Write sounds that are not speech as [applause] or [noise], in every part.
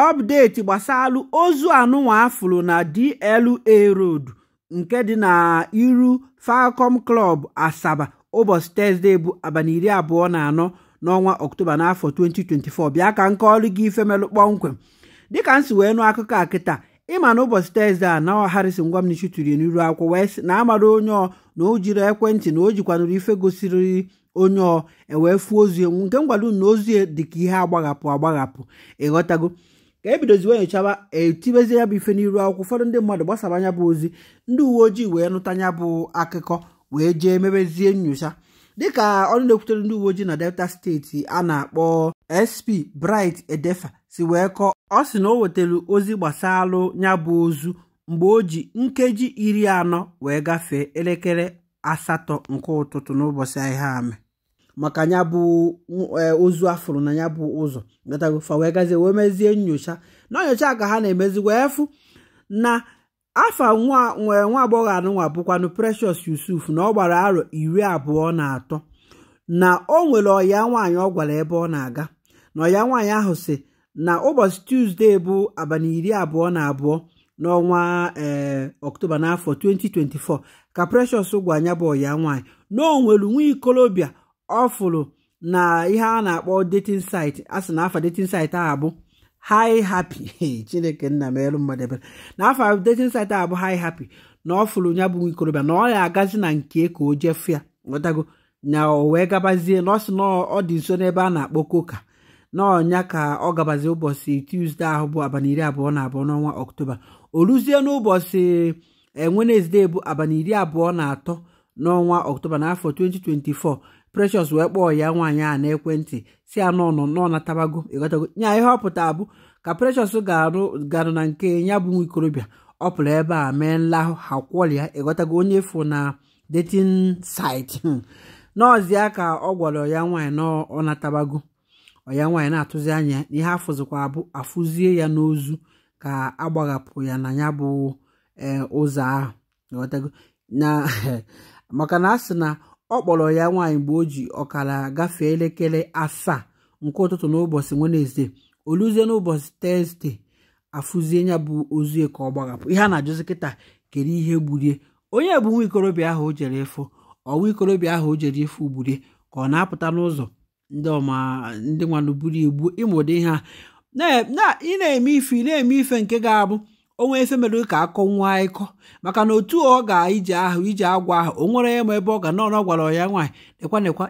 ọpdeti gbasalụ ozu anụnwa afụrụ na DLA Road nke dị na iru Falcom Club Asaba ụbọchị Tọzdee bụ abalị iri abụọ na anọ n'ọnwa Ọktoba n'afọ 2024 bịa ka nke ọrụ gị ife kpọmkwem dịka m si wee nụ akụkọ a kịta ịma na ụbọchị a na Harrison Gwamnichi tiri n'iru akwụkwọ wee na amara onye ọ na o jiri ekwentị na o jikwanụrụ ife gosiri onye ọ ewee fuo ozu nke m unu na ozi dị ka ihe agbaghapụ agbaghapụ ịghọtago ka ebidoziwe nyochaba etibezi ya bụ ife n'iru akwụkwọ ụfọdụ ndị mmadụ gbasara anya bụ ozi ndị uwe ojii wee nụta anya bụ akụkọ wee jee mebezie nyocha dịka ọnụ na-ekwutere ndị uwe ojii na delta steeti a na-akpọ sp bright edefa si wee kọọ ọ sị na o wetara ozi gbasalụ ya bụ ozu mgbe o ji nkeji iri anọ wee gafee elekere asatọ nke ụtụtụ n'ụbọchị ahịa amị maka ya bụ ozu e, afụrụ na ya bụ ụzọ gatagofa wee gazie wee mezie nyocha na nyocha ka ha na-emezi wee fụ na afa nwee nwa agbọghọ anụnwa bụkwanụ precious yusuf na ọ gbara arọ iri abụọ na atọ na o nwere ọya nwaanyị ọ gwara ebe ọ na-aga na ọya nwaanyị ahụ si na ụbọchị tuzdee bụ abalị iri abụọ na abụọ n'ọnwa ee ọktoba n'afọ 2024 ka precious gwa anya bụ ọya nwaanyị na o nwere nwa ikolobịa ọ na ihe a na-akpọ detin site a sị na afa dating site a bụ hi chineke nna m elu mmadụ ebere na afa dating site a bụ hi na ọ fụrụ ya bụ ikorobịa na ọ agazi na nke ka o jefu ya nwetago na o wee gabazie na ọ sị na ọ dị nso n'ebe a na-akpọ koka na ka ọ gabazie ụbọchị tuzdee ahụ bụ abalị iri abụọ na abụọ n'ọnwa ọktoba o ruzie n'ụbọchị eh, wenezde bụ abalị iri abụọ na atọ n'ọnwa ọktoba n'afọ 2024 precious wee kpọọ ya nwaanyị a n'ekwentị si ya nọ nọ natabago ịghọtago nya ihe ọpụta abụ ka precious garụ na nke ya bụ nwa ikorobịa ọ pụrụ ebe a mee nlahụ ha kwọrịa ịgotago onye fụ na dating site hmm. n'ọzịa ka ọ gwara ya nwaanyị na natabago ọya nwaanyị na-atụzi anya ihe afụzikwa abụ afụzie ya n'ozu ka agbaghapụ ya na ya bụ eh, ụzọ ahụ na [laughs] maka na a sị na ọ kpọrọ ya nwaanyị mgbe o ji ọkara gafee elekere asaa nke ụtụtụ n'ụbọchị wenezdee oluzie n'ụbọchị tezde afụzie ya bụ ozu ka ọ gbaghapụ ihe a na-ajụzi kịta kere ihe gburie onye bụ nwa ikorobịa ahụ o jere efu ọwa ikorobịa ahụ o jere gburie ka ọ na-apụta n'ụzọ ndị ọma ndị nwanụ buru igbu ịmụdị ị na-eme ife na-eme ife nke ga-abụ onwe nwee mere ka akọ nwa ịkọ maka na otu ọ ga ije ahụ ije agwa ahụ o nwere ma ebe ọ ga nọ ọ gwara ya nwaanyị nekwa nekwa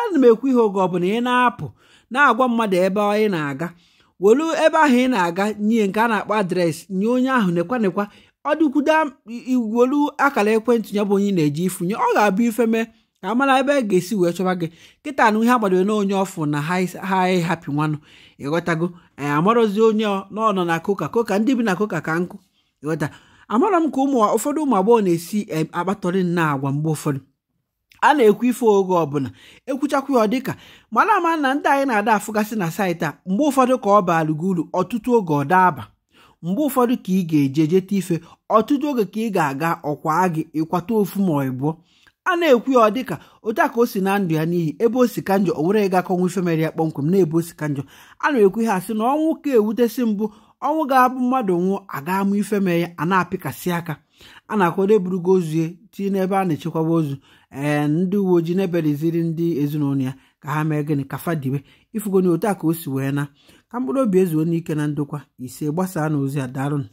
ana m ekwu ihe oge ọbụla ị na-apụ na-agwa mmadụ ebe ị na-aga welu ebe ahụ ị na-aga nye nke a na-akpọ adreesị nye onye ahụ nekwa nekwa ọ dịkwudo welu akara ekwentị ya bụ onye na-eji ifunye ọ ga-abụ ifeme mee ka amara ebe a ga-esi wee chọba gị kịta na ihe agbadoro na onye ọfụ na ha ịhapụ nwanụ ịghọtago anyị amarozi onye n'ọnọ na koka koka ndị bi na koka ka nkụ ịghọta amara m ka ụmụ ụfọdụ ụmụ agbọghọ na-esi eh, akpatọrị na agwa mgbe ụfọdụ a na-ekwu ife oge ọbụla ekwuchakwa ya ọ dịka mana ama na ndị anyị na-ada afụgasị na saịtị a mgbe ụfọdụ ka ọ baara gị uru ọtụtụ oge ọ daaba mgbe ụfọdụ ka ị ga eje jeta ife ọtụtụ oge ka ị ga-aga ọkwa gị ịkwata ofu ma ọ a na-ekwu ya ọ dịka otu a ka o si na ndụ ya n'ihi ebe o si ka njọ o were ịgakọnwu ifemere ya kpọmkwem na-ebe o si ka njọ a na-ekwu ha sị na ọnwụ ka ewutesị mbụ ọnwụ ga-abụ mmadụ nwụọ aga amụ ifemere ya a na-apịkasị aka a na-akwado eburugo ozu ya tinye n'ebe a na-echekwaba ozu ee eh, ndị uwe ojii na-ebeleziri ndị ezinụlọ ya ka ha mee gịnị ka fadiwe ifugoni otu a ka o si wee na ka mkpụrụ obi ezuo n'ike na ndokwa ise gbasaa na ozi a darụnụ